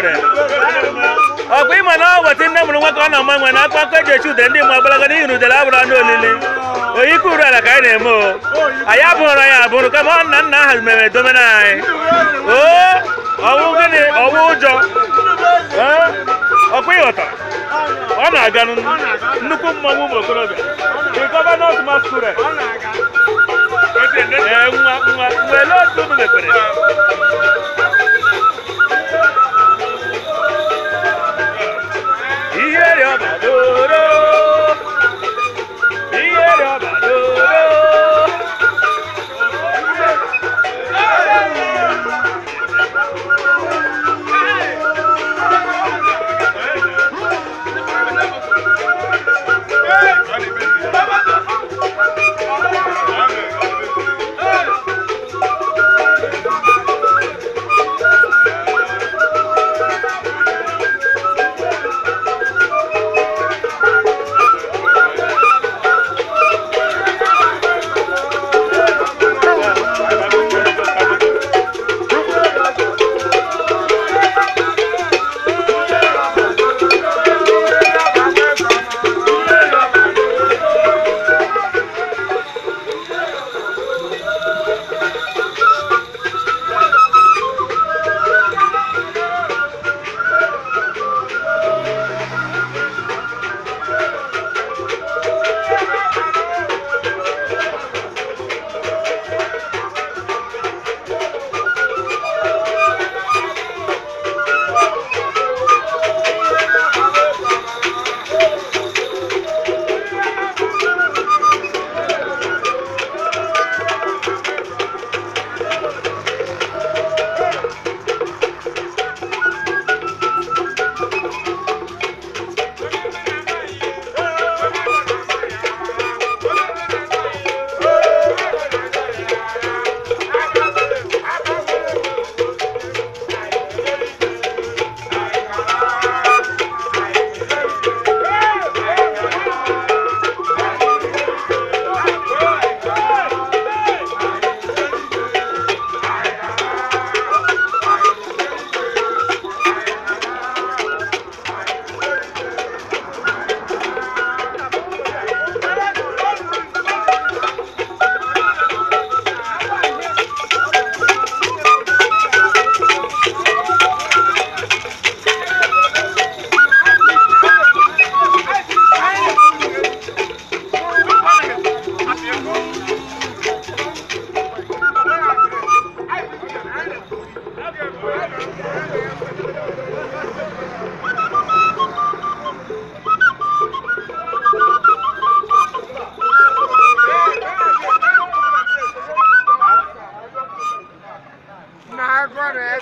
ekwere ọkwa ịma na ọ weta nne mụrụ nwa ọ na-ama nwe na akpa nkeji echi ude ndị mmụọ gbalaga n'ihi na udele abụrụ anụ olili oyike uru ala ka anyị na-eme o anyị abụghịra ya abụrụ kama ọ nna nna aha mere na anyị oo ọwụ gịnị ọwụ ụjọ ọkwa ịghọta ọ na-aga nnukwu mmanwụ ụmụ okorobịa gọvanọ masquerade ee nwa nwa wele otu ụmụ mepere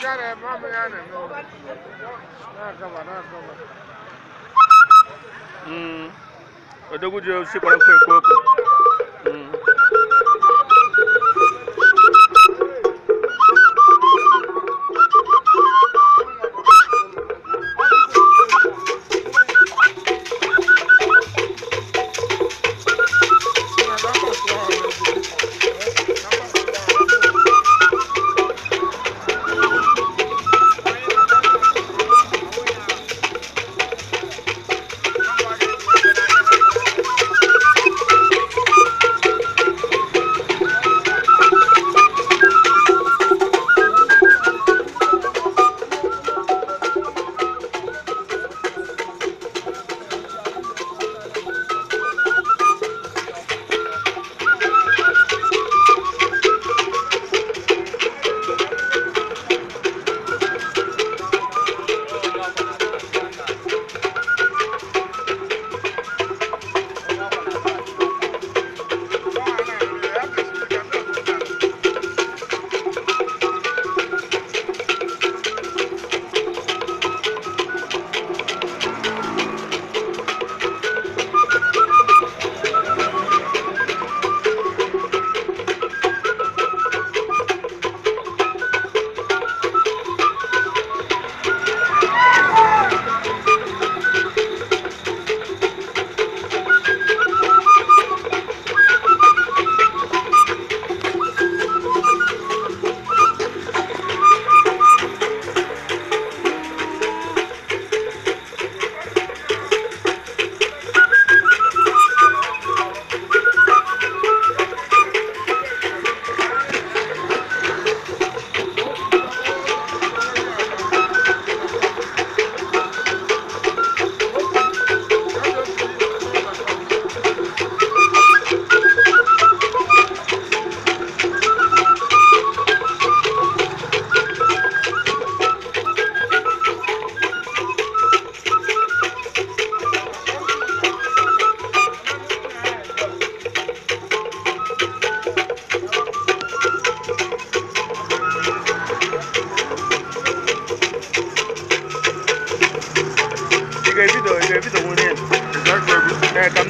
gane ma mu gane na gama na gama. Odogwu jiri osisi kpọrọ mkpa ekwu okwu.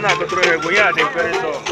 nada, creo que eh, voy a it eso.